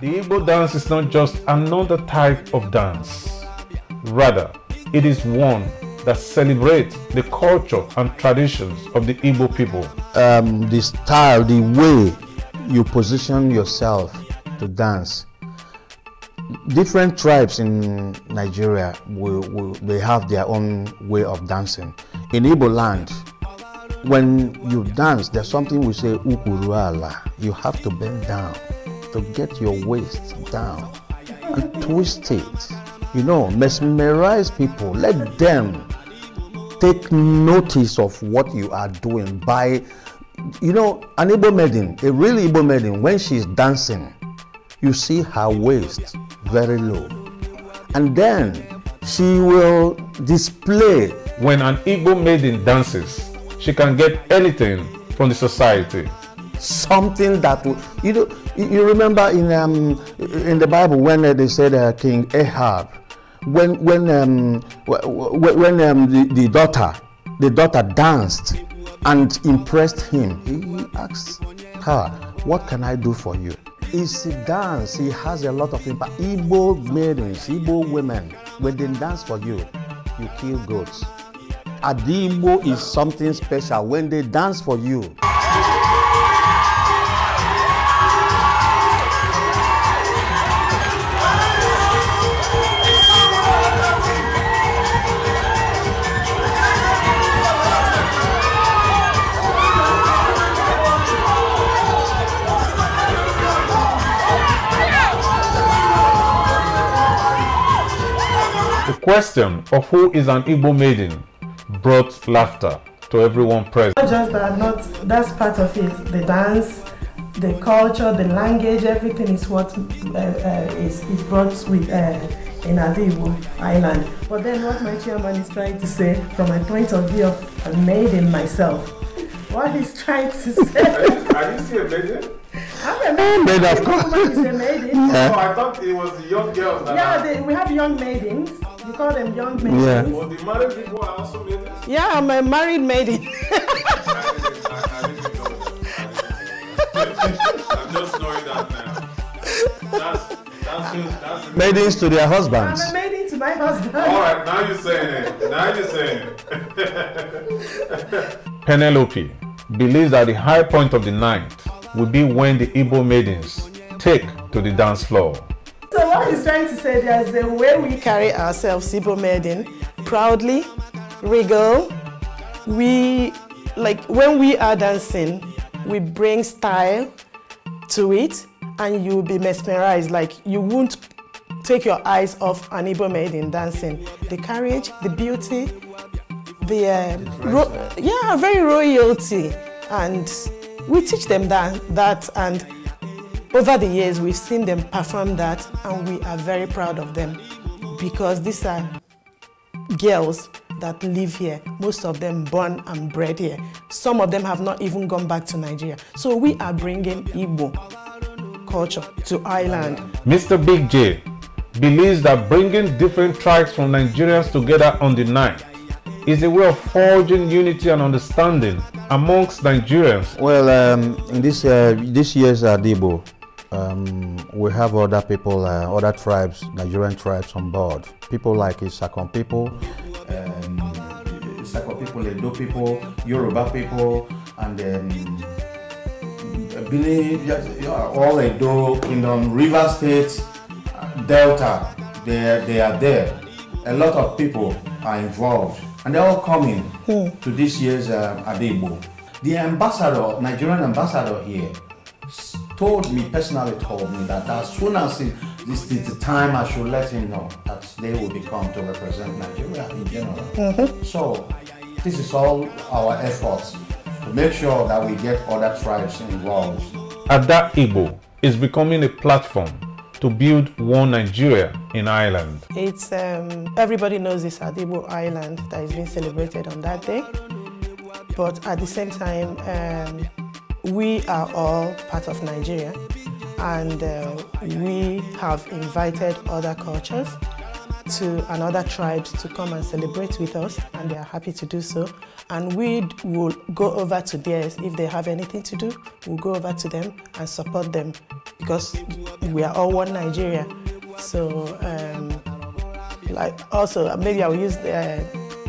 The Igbo dance is not just another type of dance. Rather, it is one that celebrates the culture and traditions of the Igbo people. Um, the style, the way you position yourself to dance. Different tribes in Nigeria will, will, they have their own way of dancing. In Igbo land, when you dance, there's something we say ukuruala. You have to bend down to get your waist down and twist it. You know, mesmerize people. Let them take notice of what you are doing by, you know, an Igbo maiden, a real Igbo maiden, when she's dancing, you see her waist very low. And then she will display. When an Igbo maiden dances, she can get anything from the society something that will, you know, you remember in um, in the Bible when uh, they said uh, King Ahab, when when um, when um, the, the daughter the daughter danced and impressed him, he asked her, "What can I do for you?" It's a dance. He has a lot of impact. Igbo maidens, Igbo women, when they dance for you, you kill goats. Adigbo is something special. When they dance for you. question of who is an Igbo maiden brought laughter to everyone present. Not just that, not that's part of it. The dance, the culture, the language, everything is what uh, uh, is, is brought with uh, in Adibu Island. But then what my chairman is trying to say, from my point of view of a maiden myself, what he's trying to say. Are you still a maiden? I'm a maiden. maiden of course. Is a maiden. Yeah. Oh, I thought it was young girls. yeah, they, we have young maidens. We call them young maidens. Yeah. Well, the married people are also maidens. Yeah, I'm a married maiden. I'm just knowing that now. That's, that's that's maidens to their husbands. I'm a maiden to my husband. All right, now you're saying it. Now you're saying it. Penelope believes that the high point of the night will be when the Igbo maidens take to the dance floor. So what he's trying to say, there's the way we carry ourselves, Ibo Medin, proudly, regal. We, like, when we are dancing, we bring style to it and you'll be mesmerized. Like, you won't take your eyes off an Ibo Medin dancing. The courage, the beauty, the, uh, yeah, very royalty. And we teach them that, that and over the years, we've seen them perform that and we are very proud of them because these are girls that live here. Most of them born and bred here. Some of them have not even gone back to Nigeria. So we are bringing Igbo culture to Ireland. Mr. Big J believes that bringing different tribes from Nigerians together on the night is a way of forging unity and understanding amongst Nigerians. Well, um, in this uh, this year's Adibo, um, we have other people, uh, other tribes, Nigerian tribes on board. People like Isakon people, um, Isakon people, Edo people, Yoruba people, and um, believe yes, all Edo Kingdom, River State, Delta, they, they are there. A lot of people are involved, and they're all coming hmm. to this year's uh, Adebo. The ambassador, Nigerian ambassador here, told me, personally told me that as soon as this is the time I should let him know that they will become to represent Nigeria in general. Mm-hmm. So this is all our efforts to make sure that we get other tribes involved. Ada Igbo is becoming a platform to build one Nigeria in Ireland. It's um, everybody knows this Adibo Island that is being celebrated on that day, but at the same time. Um, we are all part of Nigeria and uh, we have invited other cultures to another tribes to come and celebrate with us and they are happy to do so and we will go over to theirs if they have anything to do we'll go over to them and support them because we are all one nigeria so um, like also maybe i'll use the, uh,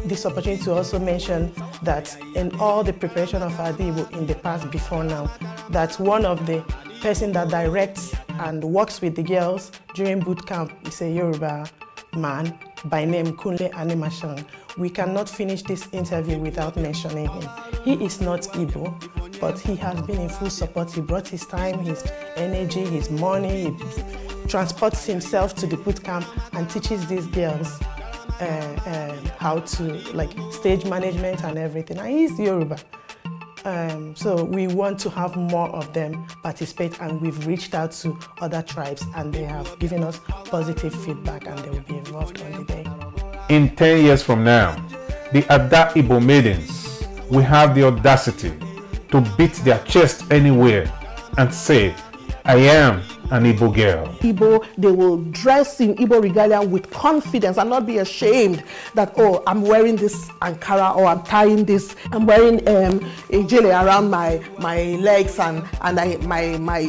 this opportunity to also mention that in all the preparation of Adibu in the past before now, that one of the person that directs and works with the girls during boot camp is a Yoruba man by name Kunle Animashan. We cannot finish this interview without mentioning him. He is not Igbo, but he has been in full support. He brought his time, his energy, his money. He transports himself to the boot camp and teaches these girls uh, um, how to like stage management and everything. And he's Yoruba. Um, so we want to have more of them participate and we've reached out to other tribes and they have given us positive feedback and they will be involved on the day. In 10 years from now, the Ada Ibo maidens will have the audacity to beat their chest anywhere and say, I am an Igbo girl. Igbo, they will dress in Igbo regalia with confidence and not be ashamed that, oh, I'm wearing this Ankara or I'm tying this, I'm wearing um, a jelly around my, my legs and, and I, my, my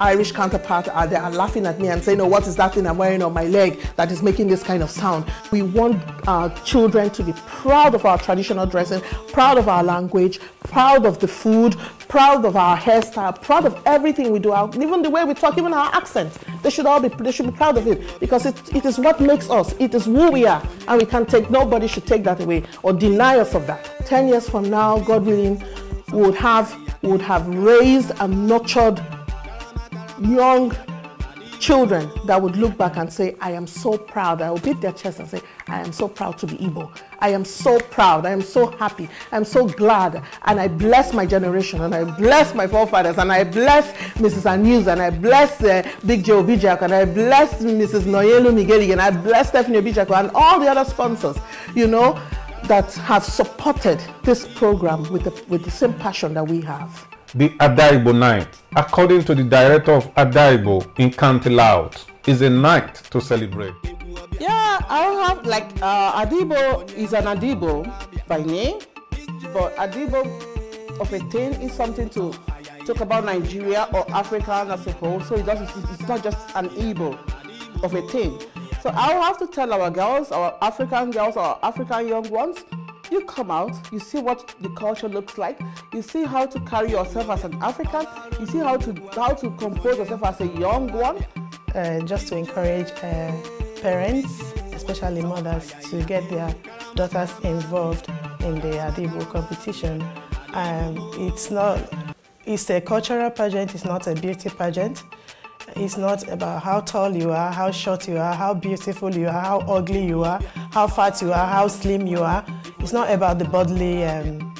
Irish counterpart are uh, there are laughing at me and saying, oh, what is that thing I'm wearing on my leg that is making this kind of sound? We want our uh, children to be proud of our traditional dressing, proud of our language, proud of the food, proud of our hairstyle, proud of everything we do, even the way we talk, even our accent. They should all be, they should be proud of it because it, it is what makes us. It is who we are and we can not take, nobody should take that away or deny us of that. 10 years from now, God willing, we would have, we would have raised and nurtured young children that would look back and say, I am so proud. I will beat their chest and say, I am so proud to be Igbo. I am so proud. I am so happy. I am so glad. And I bless my generation and I bless my forefathers and I bless Mrs. Anews and I bless uh, Big Joe Bijak and I bless Mrs. Noyelu Migeli and I bless Stephanie Bijako and all the other sponsors, you know, that have supported this program with the, with the same passion that we have the Adaibo night, according to the director of Adaibo in County Laos, is a night to celebrate. Yeah, I have like uh, Adibo is an Adibo by name, but Adibo of a thing is something to talk about Nigeria or Africa I suppose. So it doesn't, it's not just an Igbo of a thing. So I'll have to tell our girls, our African girls, our African young ones, you come out, you see what the culture looks like, you see how to carry yourself as an African, you see how to how to compose yourself as a young one. Uh, just to encourage uh, parents, especially mothers, to get their daughters involved in the Adibo competition. Um, it's not, it's a cultural pageant, it's not a beauty pageant. It's not about how tall you are, how short you are, how beautiful you are, how ugly you are, how fat you are, how slim you are. It's not about the bodily um,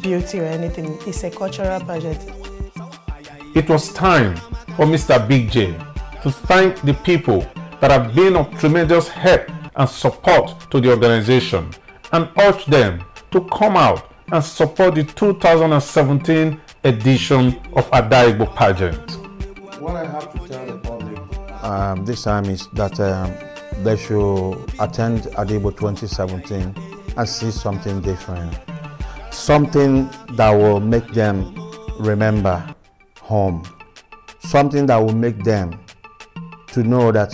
beauty or anything. It's a cultural pageant. It was time for Mr. Big J to thank the people that have been of tremendous help and support to the organization and urge them to come out and support the 2017 edition of Adaibo pageant. What I have to tell the public um, this time is that um, they should attend Adibo 2017 and see something different. Something that will make them remember home. Something that will make them to know that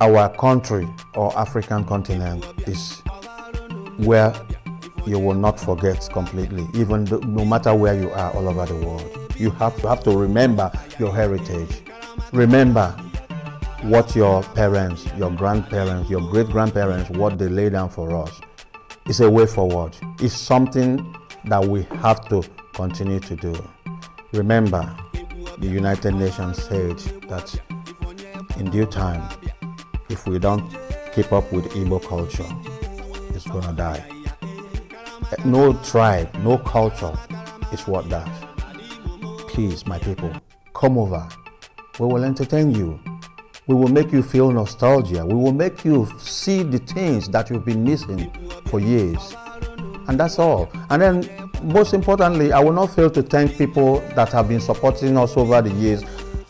our country or African continent is where you will not forget completely, even no matter where you are all over the world you have to have to remember your heritage. Remember what your parents, your grandparents, your great grandparents, what they laid down for us. It's a way forward. It's something that we have to continue to do. Remember, the United Nations said that in due time, if we don't keep up with Igbo culture, it's gonna die. No tribe, no culture is what dies. Please, my people, come over. We will entertain you. We will make you feel nostalgia. We will make you see the things that you've been missing for years. And that's all. And then, most importantly, I will not fail to thank people that have been supporting us over the years.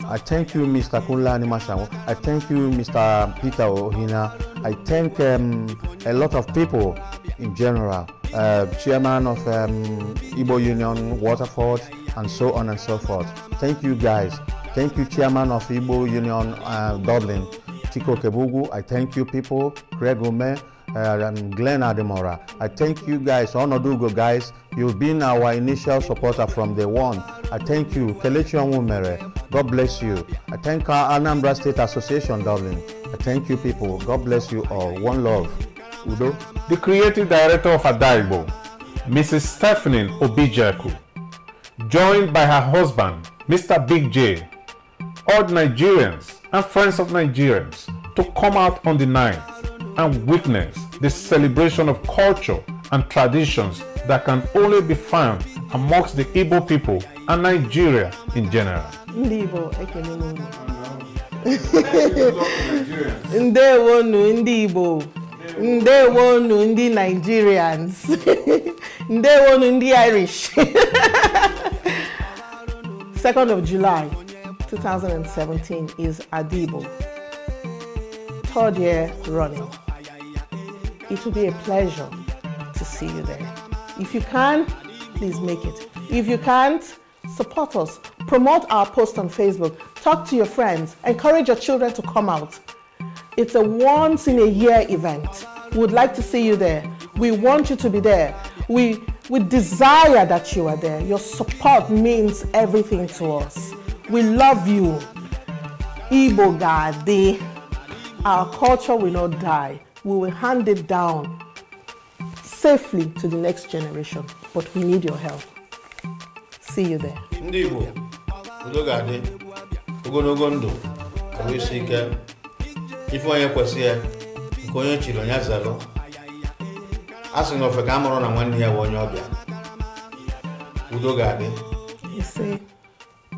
I thank you, Mr. Kunla I thank you, Mr. Peter Ohina. I thank um, a lot of people in general. Uh, chairman of um, Igbo Union, Waterford, and so on and so forth. Thank you guys. Thank you, Chairman of Igbo Union uh, Dublin, Tiko Kebugu. I thank you, people, Greg Ome, uh, Glenn Ademora. I thank you guys, Onodugo guys. You've been our initial supporter from day one. I thank you, Kelechi Onwumere. God bless you. I thank our Anambra State Association, Dublin. I thank you, people. God bless you all. One love. Udo. The creative director of Adaibo, Mrs. Stephanie Obijaku. joined by her husband, Mr. Big J, urged Nigerians and friends of Nigerians to come out on the night and witness the celebration of culture and traditions that can only be found amongst the Igbo people and Nigeria in general. Igbo, Ndewo nu ndị Igbo. Ndewo nu ndị Nigerians. Ndewo nu ndị Irish. 2nd of July 2017 is Adibo, third year running. It will be a pleasure to see you there. If you can, please make it. If you can't, support us. Promote our post on Facebook. Talk to your friends. Encourage your children to come out. It's a once in a year event. We would like to see you there. We want you to be there. We we desire that you are there. Your support means everything to us. We love you. Igbo Gadi. Our culture will not die. We will hand it down safely to the next generation. But we need your help. See you there. Ndibo, Igbo, udo ga-adị, ogologo ndụ, ya, a sị na ofe ka a mụrụ na nwanne ya bụ onye ọbịa udo ga-adị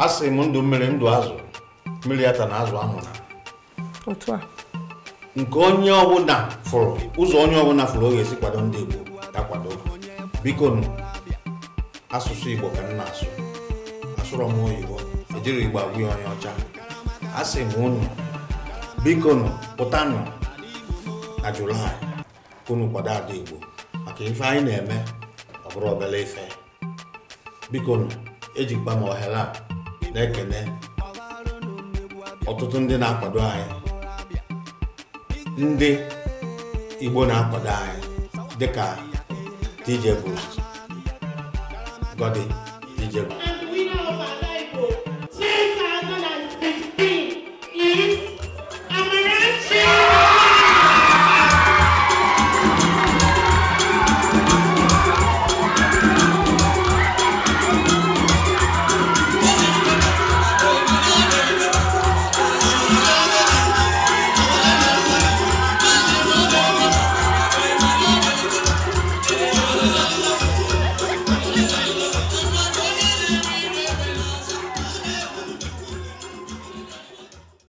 a sị m ndụ mmiri ndụ azụ mmiri ya ta na azụ amụna nke onye ọbụla fụrụ ụzọ onye ọbụla fụrụ o ga-esi kwado ndị Igbo ya kwado biko nụ asụsụ Igbo ka m na-asụ asụrọ m oyibo ejiri Igbo agwụ ya onye ọcha a sị m unu biko nụ pụtanụ na Julaị unu kwado ada Igbo ka ife anyị na-eme ọ bụrụ obere ife biko ejikwa m ohere a na-ekene ọtụtụ ndị na-akwado anyị ndị Igbo na-akwado anyị dịka DJ Bruce Godi DJ Bruce